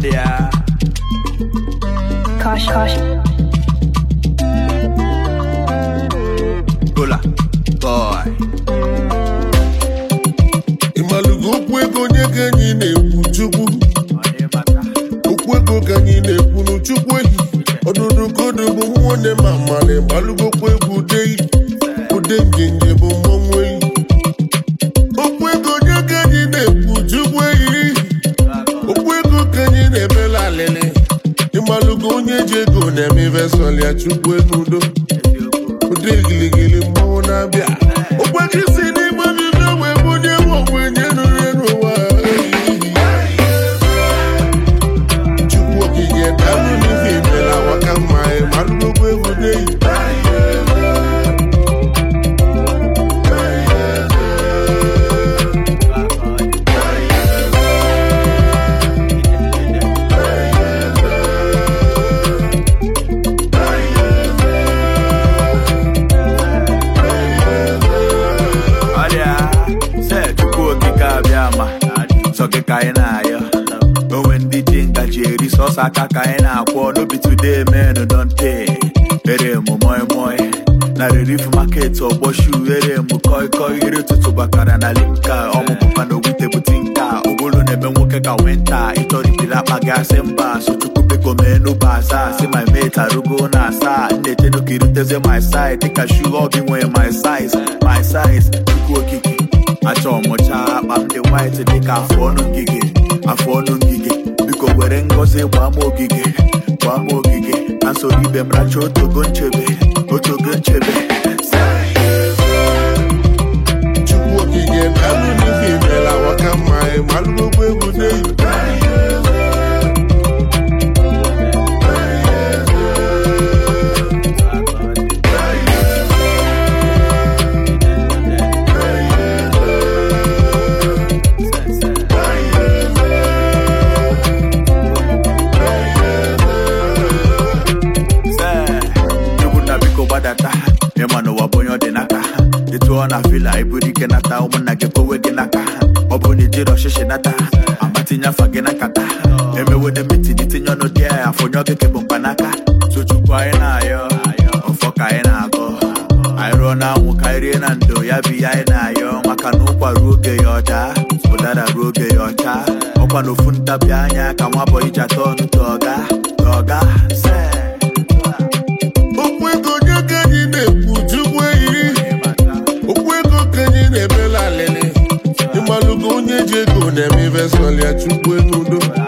there. Kosh, kosh. Gola, boy. okwu ego onye ka enyi na-ekwu okwu ego ka enyi na-ekwu n'chukwu ehi ọdụdụ kodo bụ nwanne ma mmalị gbalụgo okwu egwu ude ude ego na-eme ya chukwu n'udo ụdị giligili mmọnwụ na-abịa ka anyị na-ayọ onwe ndị ji ngaji eri sọsọ aka ka anyị na-akwọ n'obi today men don take ere mụ moi moi na relief market ọgbọ shu ere mụ koi koi ere ụtụtụ bakara na limka ọmụpụpa na ogwute bute nka ogolo na-eme nwoke ka wenta ịtọrịtiri akpa gị asị mba sochukwu biko mee n'ụba asaa si my mate arugo na asaa nna echedo ka iruteze my side dịka shu ọ gị nwee my size my size chukwu okike achọrọ ọmụcha akpa ndị white dịka afụ ọnụ ngige afụ ọnụ ngige biko were ngọzi gbaa m ogige gbaa m ogige na soro ibe m racha otogo nchebe otogo nchebe chukwu okike na alụmife imela waka mma malụ na vila iburu ike nata nna gị kpowe gị n'aka ọ bụrụ na ijiri ọchịchị nata amatinye afọ gị na nkata emewede metin itinye ọnụ dị ya afọ onye ọgịke bụ n'aka. tuchukwu anyị na-ayọ ọfọ ka anyị na-agọ anyị rụọ na anwụ ka anyị rie na ndo ya bụ ihe anyị na-ayọ maka na ụkwa ruo oge ya ọda ụdara ruo oge ya ọcha ọkwa na ofu ntabi anya ka nwa bọyị ji atọ ọnụ tọga tọga eji ego na-eme ibe sọlịa chukwu ego udo